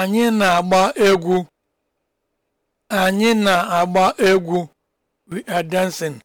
anyị na-agba egwu anyị na-agba egwu we are dancing